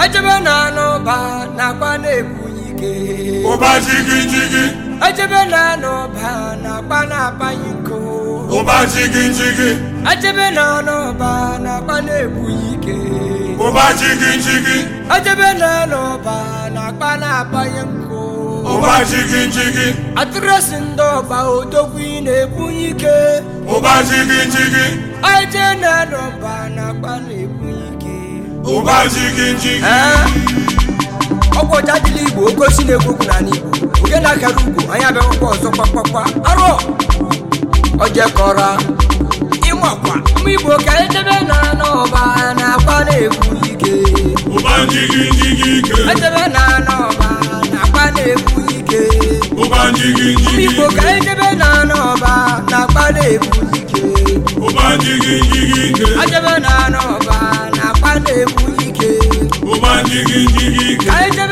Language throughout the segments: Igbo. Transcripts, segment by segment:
Ajebe na anụba na-akpa na-ebunye ike ụba na anụba na-akpa na-akpanye nko ụba na anụba na na ike ụba na anụba na na-akpanye nko ụba ndị ọba na-ebunye ike ụba na anụba na-akpa na ụba eh? ọgwụ ọcha dịla igbo oke osi na-ekwu na igbo oge na-akara ugwu anya abịakwụkwọ ọzọ kpakpakpa arụ ojekọra ịmakwa mma igbo ka edebe na n'ọba na na ike edebe e na n'ọba na-akpa na ike igbo ka edebe na n'ọba na-akpa na-ekwu ike edebe na n'ọba Jiggy, jiggy, jiggy.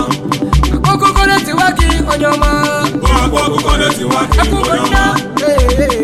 akwụkwọ akụkọ na-etiwa akụkọ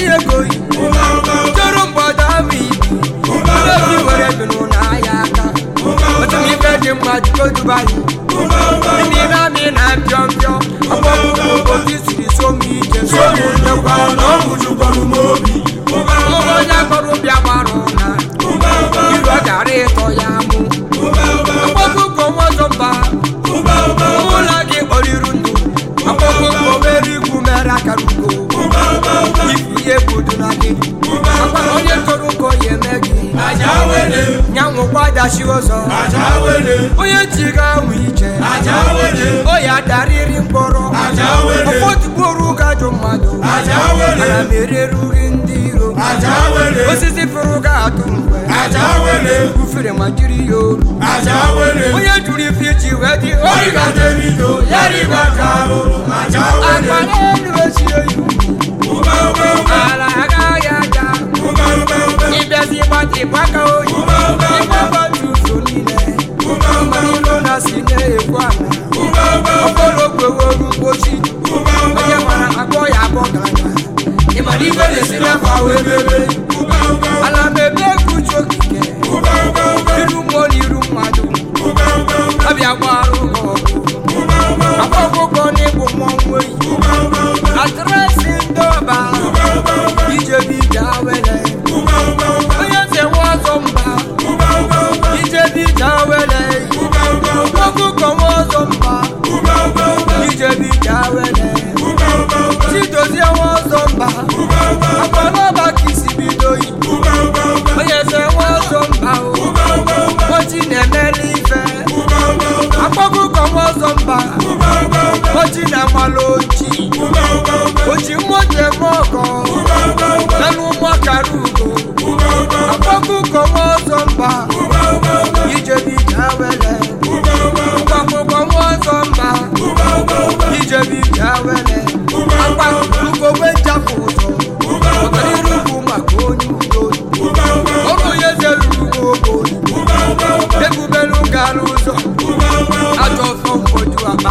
ndị ego toro mgbada ama ibi obi were binụ n'ahịa aka otu ife dị mma jiko dubayi n'ime amị na mpịọ mpịọ ọkpọkpụ obi siri so ije akarugo ihe bodo na gị akwara onye toro ụkọ ya eme gị nyanwụkwa dachi ọzọ onye ji ga anwụ ije o ya mkpọrọ ọfọdụgboro gajụ mmadụ ana m ndị iro osisi fụrụ ga-atụ mgbe ufere ma jiri ya onye ife wee dị ala agaghị aga ịbịazi gbata ịgbaka oyi ịgbabatu ụzọ niile ilo na si na-ekwu ala okolokweworu mgbochi onye mara akpọ ya akpọ gara ibe na-esi n'afọ ahụ ebebe oji na agbala oji oji mmoji eme ọgọ nanụ ụmụọkara ugo akpọkụkọ nwa ọzọ mba ijebija wele sọ mba wele ụzọ ọtọrịrụbụ maka onye udo ụzọ ajọ ọfọ mkpoju aba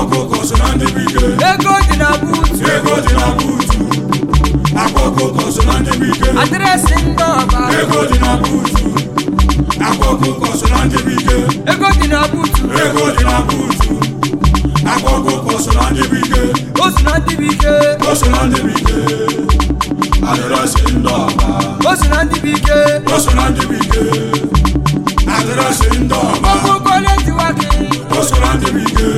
ọkụkọ so na ndị bike ego dị na buutu ego dị na buutu akwa ọkụkọ so na ndị bike adreesị ndị ọba ego dị na buutu akwa ọkụkọ so na ndị bike ego dị na buutu ego dị na buutu akwa ọkụkọ so na ndị bike o so na ndị bike o so na ndị bike adreesị ndị ọba o so na ndị bike o so na ndị bike adreesị ndị ọba ọkụkọ na-ejiwa gị o so na ndị bike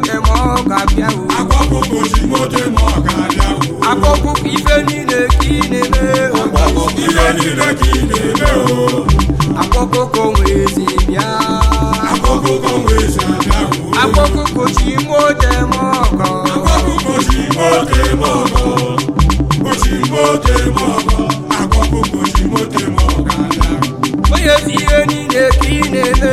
ote ma ọ ga-abịa o akpọkpụkpụ ozugbo ote ma ga-abịa o ife niile ka ị na o ife niile ka ị na-eme o akpọkpụkpụ nwezi bịa abịa o ọgọ ọgọ ọgọ ga-abịa o ihe niile ka ị niile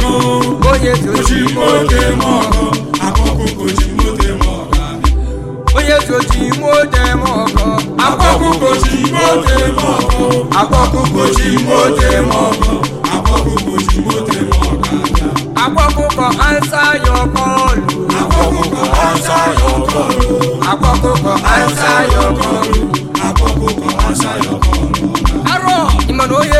onye sochi ime ọkọ akpọkụkochi ime ọkọ akpọkụkochi ime ọkọ akpọkụkọ ansa yọ akpọkụkọ ansa yọ akpọkụkọ ansa yọ arọ onye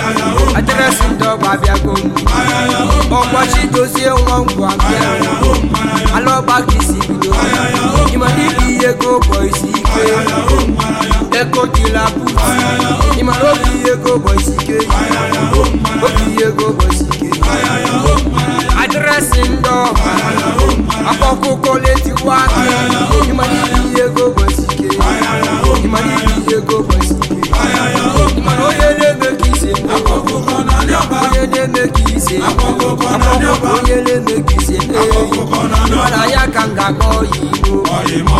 ọgba abịago ọkpọchi dozie nwa ngwa bịa alọgbaka isi bido ịmara ibe ihe ego ụbọ isi ike eko kila put ịmara obi ihe ego ụbọ isi ike obi ihe ego ụbọ isi ike adreesị ndị akpọkụkọ ise akpọkọ onyele mekise eyi mana ya ka m ga gbọọ ya igbo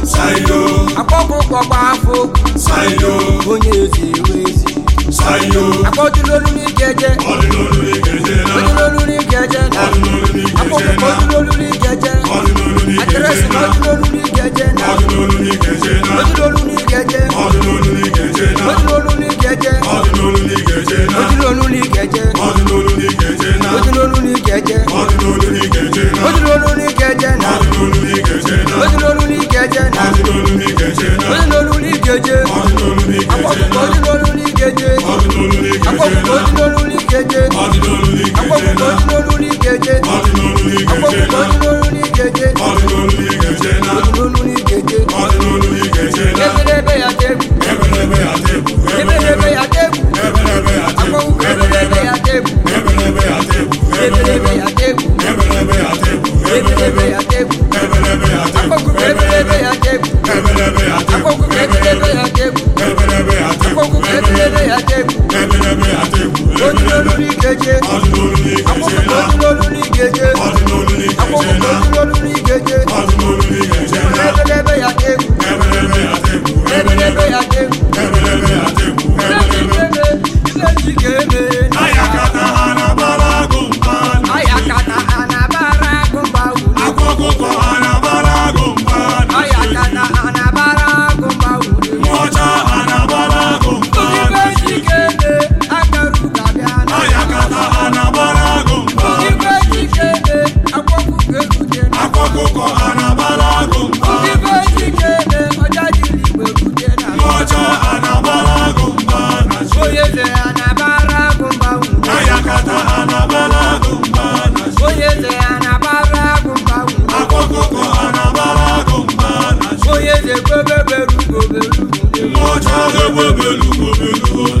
akpọkpọkpọgba afọ onye ezi ewe ezi ebelebe ya tebụ ebelebe ya tebụ akpọkụ ebelebe ya tebụ ebelebe ya tebụ akpọkụ ebelebe ya tebụ ebelebe ya tebụ akpọkụ ebelebe ya n'ikeje akpọkụ wewe belugo belugo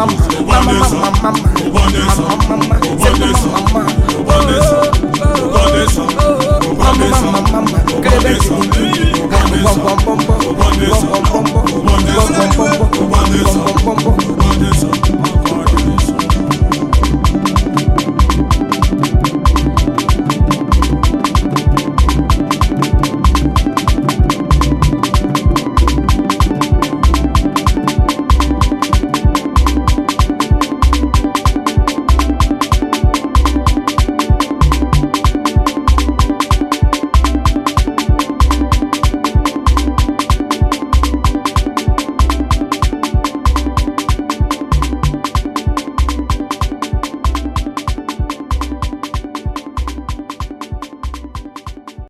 mama mama mama mama mama mama mama mama mama